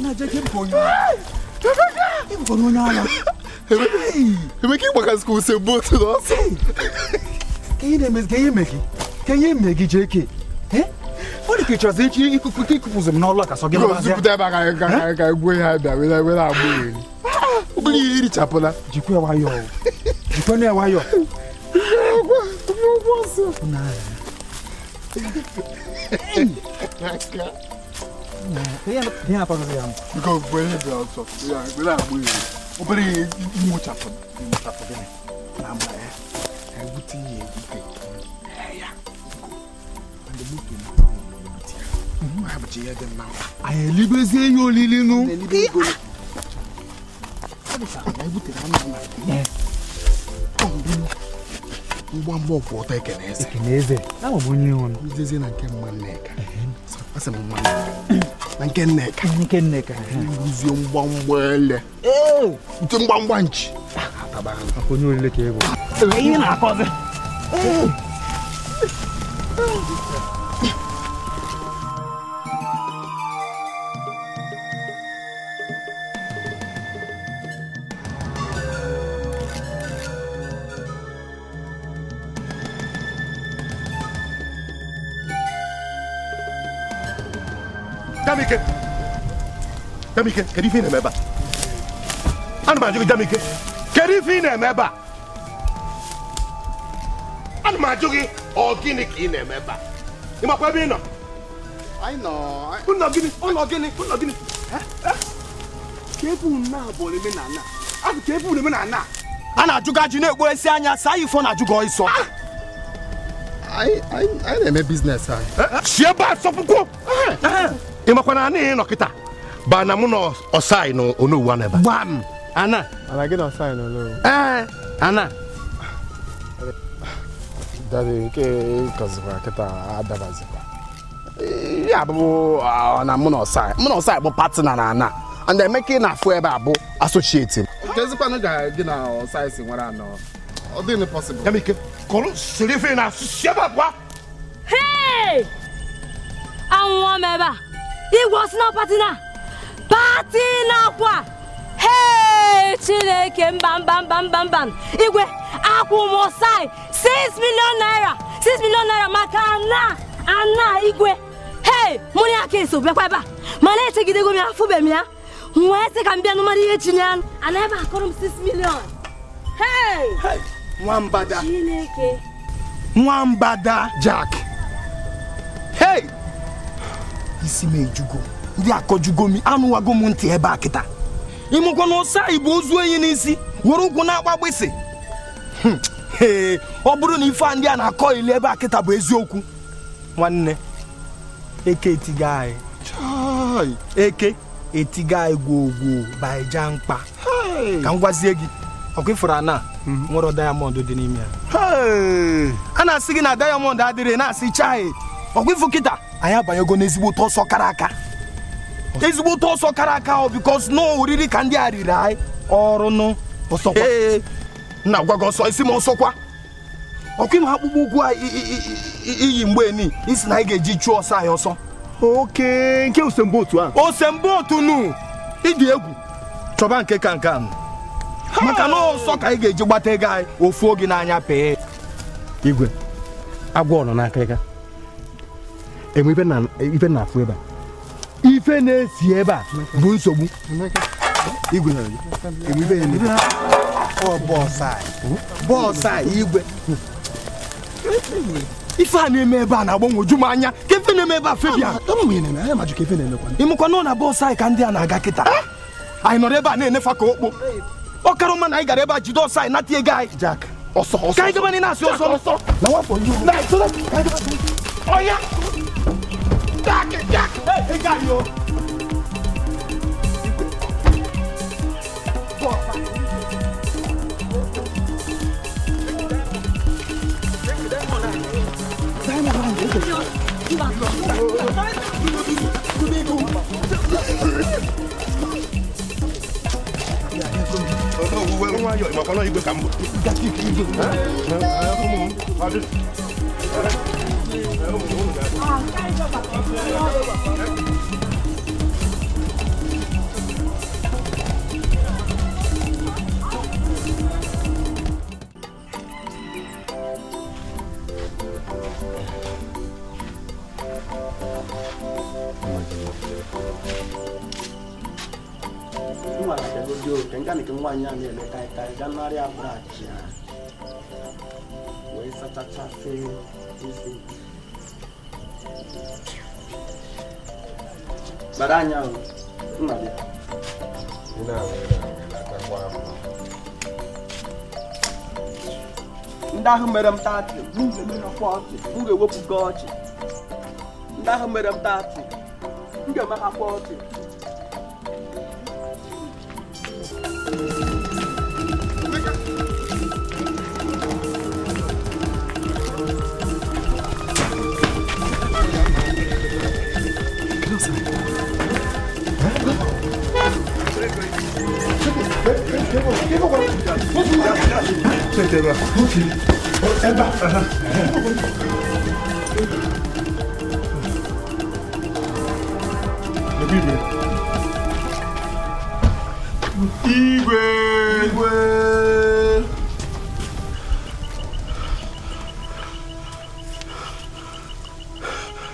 Na Jenke mkonyo. Hii mkonyo nyala. Hemeki mwaka siku usebutu noso. Hii ne mezge hii meki. Kenye megi JK? Eh? Ọ dị ka ịchọzi ikụpụzi m n'ọlụ ka sọ gị mabazie. Zipụta ebe aka ka ka egwu ihe abịa were were agbụ eri. Obere ihe irichapụla. Jikwa nwayọọ. Jikwa nwayọọ não aguento, não posso. Nada. Tem apa kalian? Kau boleh biasa. Ya, bila boleh. Kau boleh mengucap, mengucap begini. Nama eh, eh buti ye buti. Eh ya. Anda buti nama buti. Hmm, apa cia dan nama? Ayah libe zeyo lilinu. Yes gbaa mbọ kwụ ọtọ ekeneze ekeneze ahụ bụ onye ọnụ ijezie na nke mma nneka asị m não na nke nneka nke nneka ruzie mgbamgba ele nke mgbamgba nchi onye olile ka ego ihe na fazer kedu ife ị na-eme ebe a ana m ajụ gị jam ike kedu ife ị na-eme ebe a ana m ajụ gị ọ gịnị ka ị na-eme ebe a ị makwa ebe ị nọ ụlọ gịnị ụlọ gịnị ụlọ gịnị ka ebe unu abụọ omenala abụ ka ebe unu omenala a na-ajụgo ajụ na-ekpo esi anya saa ifo na-ajụgo ịsọ anyị na-eme biznes anyị si ebe a sọpụkwuo ị na anyị nọ kịta banamu na ɔsae no ɔno owu anaba. bam ana. alage na ɔsae no no. ɛɛ ana. dade ke kɔziba kita adaba ziba ya bụ na mụ na ọsa mụ na ọsa bụ patina na ana and emeka ị na-afụ ebe a bụ asocieti m. kezikwanụ ga gị na ọsa esi nwere anọ ọ dịghị pọsibụl. ya mike kọrọ siri ife na asụsụ ebe abụọ. hei anwụọ m ebe a igwe ọsị patina. pati na-akwa chineke mba mba mba mba igwe akwụ 6 million naira 6 million naira maka ana ana igwe hei mụrụ aka eso bịakwa ebe a mana echegidego m ya afụbe m ya nwee sị ka m bịa nụmara ihe chinye anụ ana ebe akọrọ m 6 million hei nwambada chineke nwambada jack hei isi m ejugo ndị akọju anụwago m ntị ebe a kịta ịmụkwa na ụsa igbo ozu onyi n'isi were ụkwụ na-agba hmm, ee ọ bụrụ na ife a ndị a na-akọ ili ebe a kịta bụ eziokwu nwanne eke etiga anyị eke etiga anyị baija mkpa ka m gwazie gị ọkwa ana mhm. nwere dayamọndụ dị n'ime ya a na-asị gị na dayamọndụ adịrị na-asị chai kịta anyị abanyego n'ezigbo ụtọ ọsọ kara aka ezigbote ọsọ kara aka ahụ bikos na oriri ka ndị a riri anyị ọrụ nụ ọsọkwa na gwa gị ọsọ isi m ọsọkwa ọkwa ịma akpụkpọ ụkwụ a iyi mgbe ni isi na anyị ga-eji chụọ ọsọ anyị ọsọ oke nke osembotu ahụ otu nụ ịdị egwu chọba nke ka nke ahụ maka na ọsọ ka anyị ga-eji gbata ego anyị ofu oge n'anya pee igwe agwọ nọ n'akịrịka enwe ibe na-afụ ebe a ife na-esi ebe a bụ nsogbu bọọsụ a igwe ife a na-eme ebe a na-agbanwoju m anya ka ife na-eme ebe a febia ịmụkwa na ọ na bọọsụ anyị ka ndị a na-aga kịta anyị nọrọ ebe a na-enefa ka okpo ọ kara mma na anyị gara ebe a jide ọsọ anyị nata ego anyị ka anyị gaba na ị na-asị ọsọ ọsọ jákè jákè ẹ jáde o. Ìmọ̀kànlá yìí gbé kàmbọ̀. Gàtí kìí gbé. Ẹ ẹ ọmọ ọmọ adé. Cuma ada dulu tengkan itu semuanya ni lekai kai dan Maria Bracia. Wei sata chafe, isi. Bara anya ahụ, nna bịa. Ndị ahụ mere m taatị, m ga-ewepụ gị ọchị. Ndị ahụ mere m taatị, m ga kwa ọchị. Igwe! Igwe!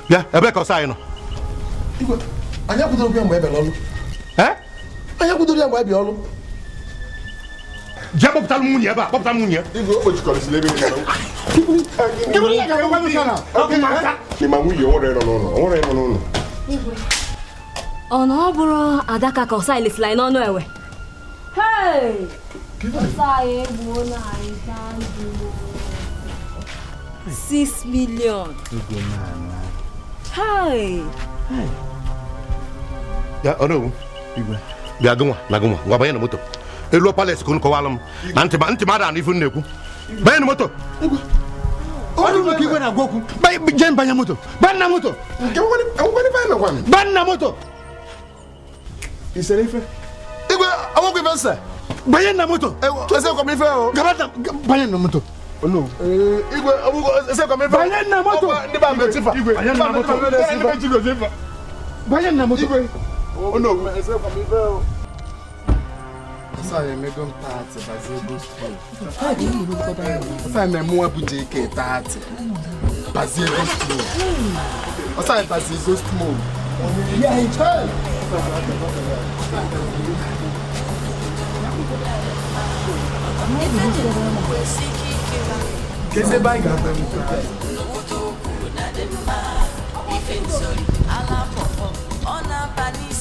Bịa, ebe ka ọsa anyị nọ? Igwe, anyị akwụdoro ya mgbe ebe n'ọlụ. Ee? Anyị akwụdoro ya mgbe ebe ọlụ jẹ bọpụta mu ɲɛ ba bọpụta mu ɲɛ. ibi o jukɔrɔ sile bɛ yen nɔ. jibiri yɛ kɛ wali kana. limamu yɛ wɔrɔ yɛrɛ nɔ wɔrɔ yɛrɛ nɔ. ọ̀nà ọ bụrụ adaka ka ọsa elesila anyị n'ọnụ ewe six million. ya ọrụ ewu bịa gụnwa na gụnwa ngwa banye na moto elu palace ka unu kọwara m na ntị ntị mara na ife na-ekwu banye na moto je banye moto banna moto banna moto igwe awokwu ife nsa banye na moto Ese o. banye na moto no. Igwe abugo ese kwa mefa. Banye na moto. Ndi ba me tifa. Igwe. Banye na moto. Ndi ba me tifa. Banye na moto. Igwe. Oh no. Ese kwa mefa sọrọ emego m taatị baziego skuul ọsọ na-eme nwa bụ jk taatị baziego skuul ọsọ anyị baziego skuul kedu ebe anyị ga-abịa m ife nsori ala pọpọ ọ na-aba n'ihe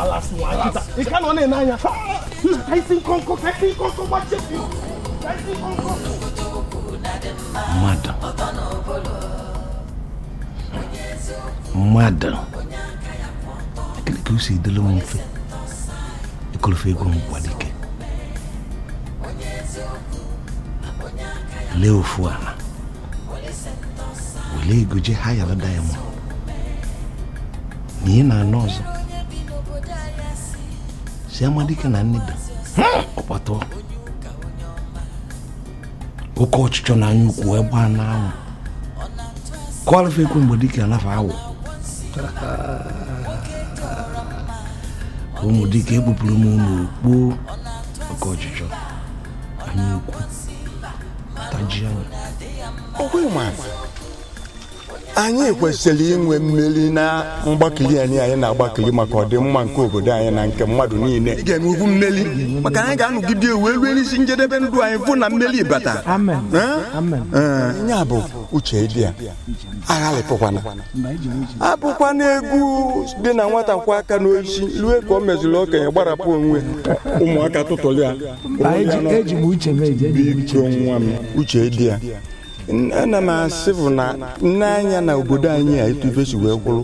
palace nwa tá- tá tá Que ị ka nọ na-ene anya ka isi nkonko ka isi nkonko gbachepi ka isi nkonko mmadụ mmadụ que ka o si dịrị m mfe eu ego m kwadike lee ofu ala wele ego je ha yara diamond na ị na-anọ siamadike na nneda hmm, ọkpata oke ọchịchọ na anya ukwu ebe a na-anwụ kọlfe ekwe mgbe dike anafa awụ ụmụ dike ekpupụrụ m n'okpo oke ọchịchọ anya ukwu tajia ọkwa ịma anyị kwesịrị inwe mmeri na mgbakili anyị anyị na-agbakili maka ọdịmma nke obodo anyị na nke mmadụ niile ị ga-enwe ugwu mmeri maka anyị ga-anọgide ewu elu n'isi njedebe ndụ anyị fụ na mmeri bata ya bụ uche dị a aghalịpụkwana abụkwana egwu dị na nwata kwa aka n'oisi rue ka ọ meziri okenye gbarapụ onwe ụmụaka tụtụrụ ya e e biko nwa m uche dị a ana m asị bụ na nne na obodo anyị a etu etubesi wee gwụrụ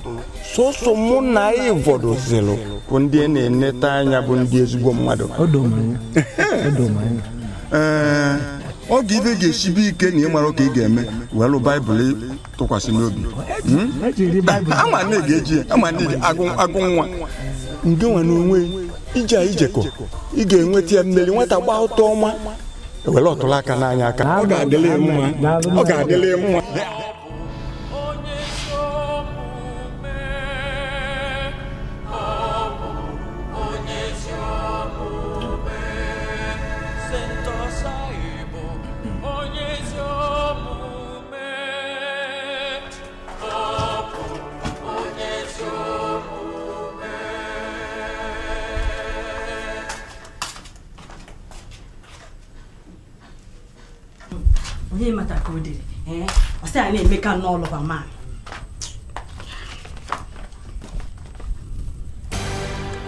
sọsọ mụ na ịvọdozilụ bụ ndị e na-eneta anya bụ ndị ezigbo mmadụ ọ oge ibe ga-esibe ike na ịmara ka ị ga-eme welụ baịbụl tụkwasị n'obi agụ nwa nge nwa n'onwe ije ijekọ ị ga-enweta ya mmeri nwata gba ụtọ ọma ewere ọtụrụ aka n'anya aka ọ ga-adịle mma ọ ga-adịle mma onye mata ka o dere eh? ọ sị ya na-emeka n'ọlụba maan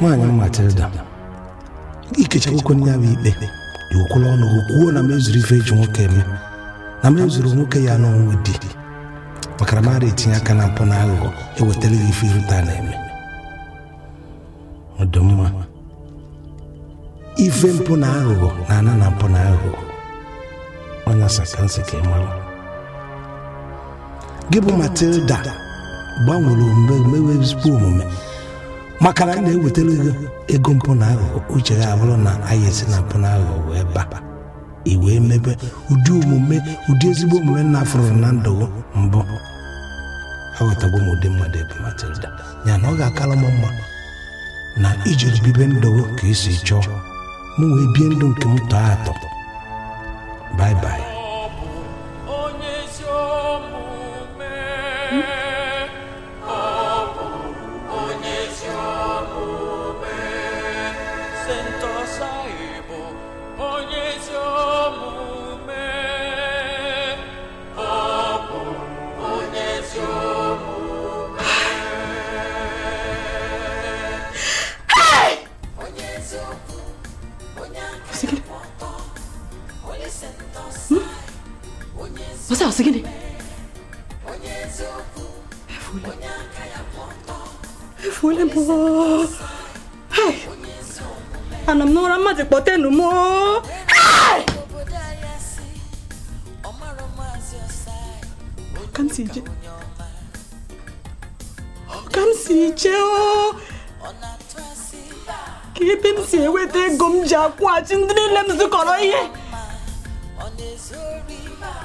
nwaanyị Matilda ikecha akwụkwọ ndị ahụ ikpe dị okwula ọnụ kwuo na m ife eji nwoke eme na m nwoke ya n'ọnwụ di makara mara etinye aka na mpụ na aghụghọ ewetara ya ife irute na-eme ọdụmma ife mpụ na aghụghọ na ana na mpụ na aghụghọ ọnyasa ka nsị ka gị bụ matilda gbanwere omume omume maka na na-ewetara ego ego mpụna aghụghọ uche ya na anya esi na aghụghọ wee baa i wee mebe ụdị omume ụdị ezigbo omume na afụrụ na ndụ mbụ aghọtagbo m ụdị mmadụ ebe matilda ya na ọ ga-akara m mma na ijiri bibe ndụ ka esi chọọ m wee bie ndụ nke m tọọ atọ 拜拜。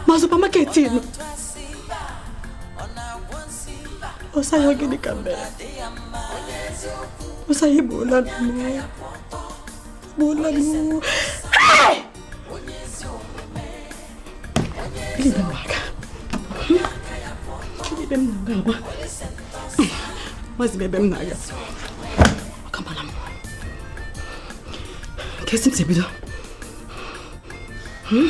ma supamaketi ni quer gịnị ka mere osaye egbuola nnụọ egbuola nnụọ gịnị na-aga ebe Ele na-aga agba mazi ebe m na-aga ọkamara m nke que m si bido Hmm?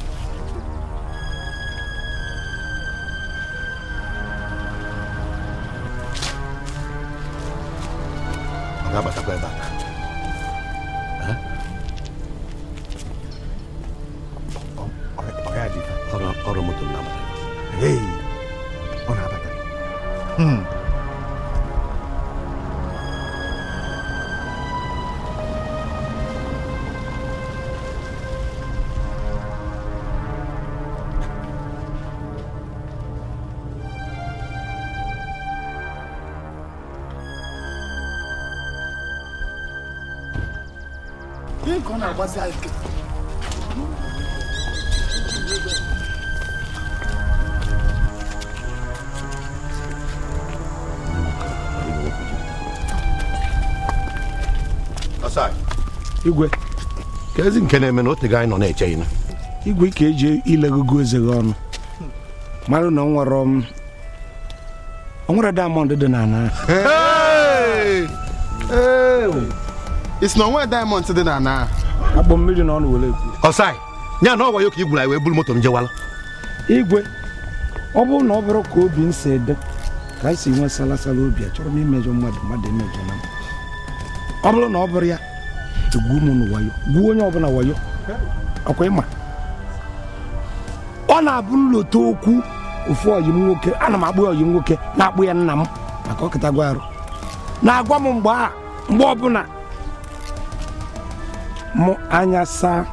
rapaziada. É Asai. Igwe, kezi nke na-eme na otu gị anyị nọ na-eche ịna. Igwe ka eji ilegogo eze gị ọnụ. Mara na da onwere de dị Hey, hey, isso não é da diamond de n'ala. akpọ mmiri na ọ na were ekwu ọsai ya na ọ ya ka igwu na wee buru moto m jewala igwe ọ bụrụ na ọ bụrụ ka obi m si ede ka anyị si nwee salasala obi chọrọ m imejọ mmadụ mmadụ emejọ na ọ bụrụ na ọ bụrụ ya egwu m na wayo gwuo onye ọbụla wayo ọkwa ịma ọ na-abụrụla otu okwu ofu ọyị m nwoke ana m akpụ ọyị m nwoke na-akpụ ya nna m maka ọkịtagwa arụ na-agwa m mgbe a mgbe ọbụla mụ anya saa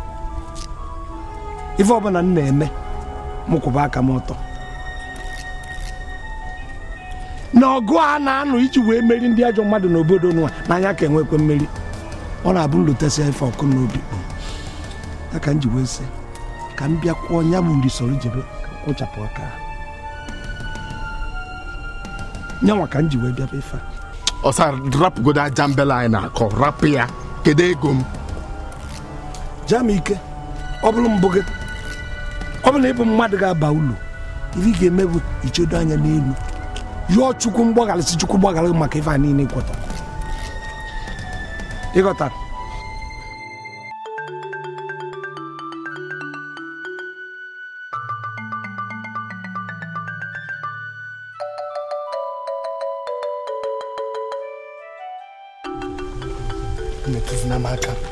ife ọbụla m na-eme mụ kwụba aka m ụtọ na ọgụ a na-anụ iji wee meri ndị ajọ mmadụ n'obodo nwa na-anya ka enwekwe mmeri ọ na-abụ ya ife ọkụ n'obi ya ka m ji wee si ka m bịa kwụọ nya bụ nri soro jebe kpụchapụ aka nyanwa ka m ji wee bịa ife ọsa rapụgodo aja mbela anyị na-akọ rapụ ya kedu ego m jaa ike ọ bụrụ mbụ gị ọ bụrụ ịbụ mmadụ ga-aba ulu ihe ị ga-eme bụ ichedo anya n'elu yụọ chukwu mgbaghara si chukwu gbaghara maka ife a niile ịkwọta ịghọta metụzina m aka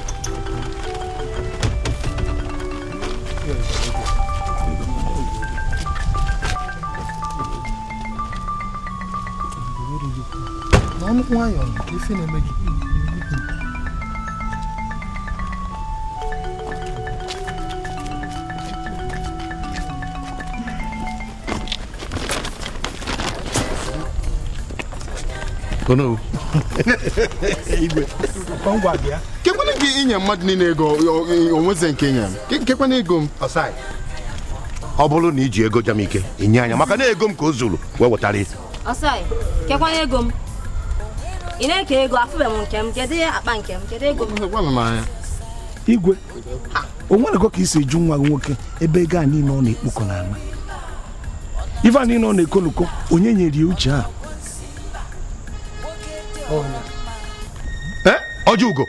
ife na-eme gị kekwana gị inye mmadụ niile ego onweze nke nye m kekwana ego m ọ bụrụ na iji ego jam ike inye anya maka na ego m ka o zuru wee wetara isi kekwana ego m ị na-eke ego afụbe m nke m kedu akpa nke m kedu ego igwe o nwerego ka si eju nwa gị nwoke ebe ego a niile ọ na-ekpokọ n'ala ife a niile ọ na-ekoloko onye nyere ya uche a ọjọugo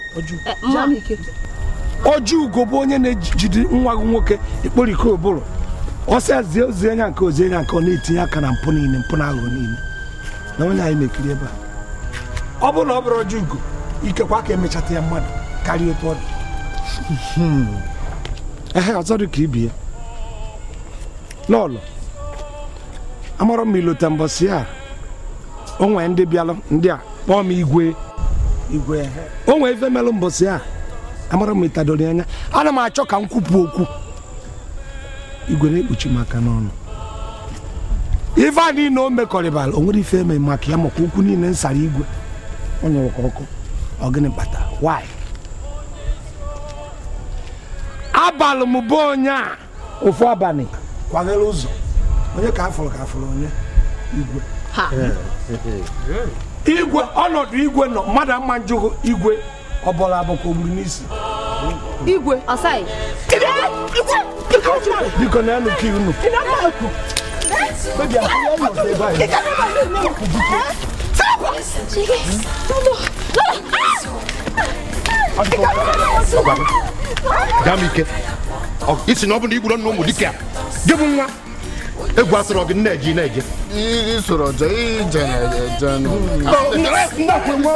ọjọugo eh, bụ onye na-ejide nwa gị nwoke ikporiko ụbụrụ ọsịa zie ozi nke ozi anya nke ọ na-etinye aka na mpụ niile mpụ na aghụghọ niile na onye anyị na-ekiri ebe a ọ bụrụ na ọ bụrụ ọjọọ ugo ikekwa ka emechata ya mmadụ karịa otu ọ dị hmm. ehe ọzọ dị ka ibi ya lọlọ amarọ m ilota mbọsị a onwe ndị bịalụ ndị a kpọọ m igwe igwe onwe ife melụ mbọsị a amara m itadori anya ana m achọ ka m kwupụ okwu igwe na-ekpuchi maka aka n'ọnụ ife a niile o mekọrịbara o nwere ife eme maka ya maka okwu niile nsara igwe ọ nyụrụ ka ọkụ ọ why abalị m bụ onye a ofu abalị kwaghere ụzọ onye ka afụrụ ka afụrụ onye igwe igwe ọnọdụ igwe nọ mmadụ ama njụghị igwe ọ bụla abụkwa ogburu n'isi igwe ọsaghị biko na enu ka unu damike isi na ọ bụ na igwuru nna ụmụ dike gị bụ nwa egwu asịrị gị nna eji na-eje isoro je ije na-eje n'ụlọ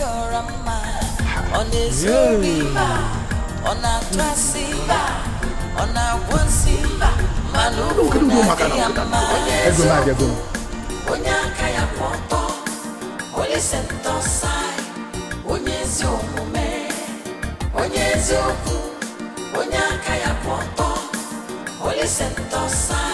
you're a man. Ọ̀nà èso a sí ọ̀nà a saị, saị.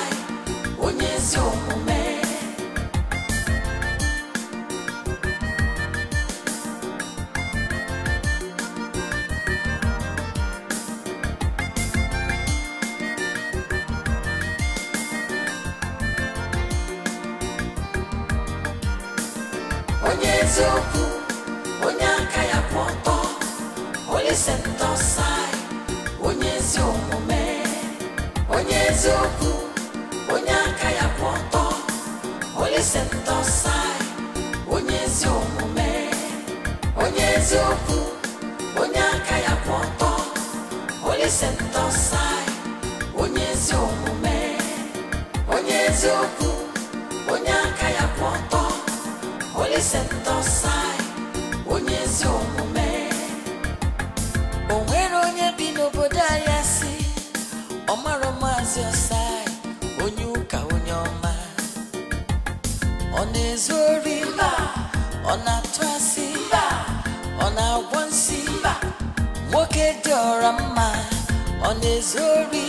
na-ezori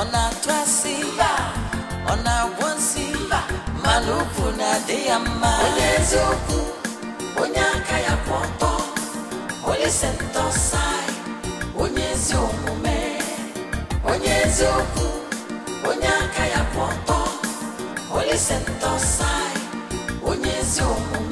ọ na-atụasị ọ na-agwọ nsị mana ụkwụ na-adị ya mma onye eziokwu onye aka ya kwụ ọtọ onye sentọsai onye ezi omume onye eziokwu onye aka ya kwụ ọtọ onye